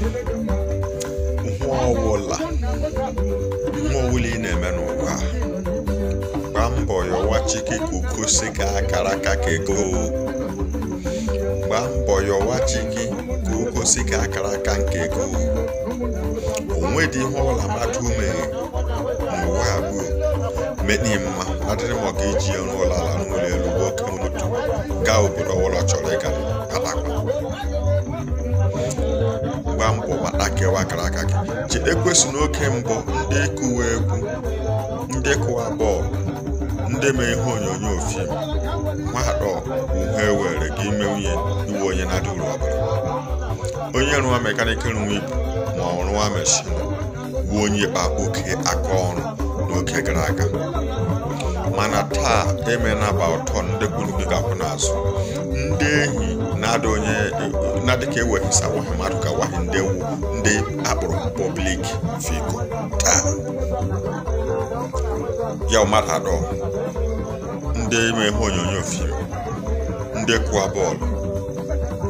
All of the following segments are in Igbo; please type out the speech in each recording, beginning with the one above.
Mmụọ ọbụla mmụọ na-eme n'ụwa gbaa mbọ yọwa chike ka uko ka akara aka ka ego mbọ yọwa chike ka si ka akara aka nke ego onwe dị ihe ọbụla mmadụ ume n'ụwa abụọ medị mma adịrị m ọga iji e ọnụ ụlọ ala n'ụlọ elu gaa obodo ọbụla chọrọ ịga gbaa mbọ maka kewa akara aka gị ji ekwesị n'oge mbụ ndị kụwa egwu ndị kụwa bọọlụ ndị mee ihe onyonyo fim mmadụ uhe were gị ime nwunye iwe onye na-adị uru ọbụla onye rụwa mekaniki rụwa ibu ma ọ rụwa meshin bụ onye kpa oke aka ọrụ n'oge gara aga mana taa emena gba ụtọ ndị kwuru gị gakwụ n'azụ na-ada onye na-adịka ewepụsa wahi mmadụ ka wahi ndị wu ndị akpọrọ pọblik figo taa ya mmadụ adọ ndị ime ihe onyonyo fim ndị kụwa bọọlụ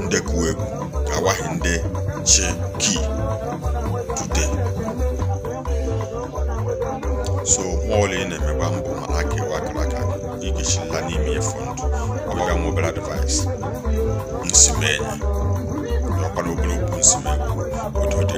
ndị kụwa egwu nde ndị chi ki so nwaọlụ ị na-emegba mbụ mana ka ikechikwa n'ime fọndụ ọgbaga nwa obere nsimenye ọkwa n'obere okwu nsimegwu otu